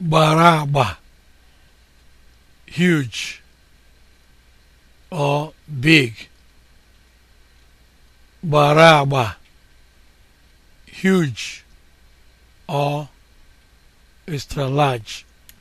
gbara agba huge or big gbara agba huge or extra large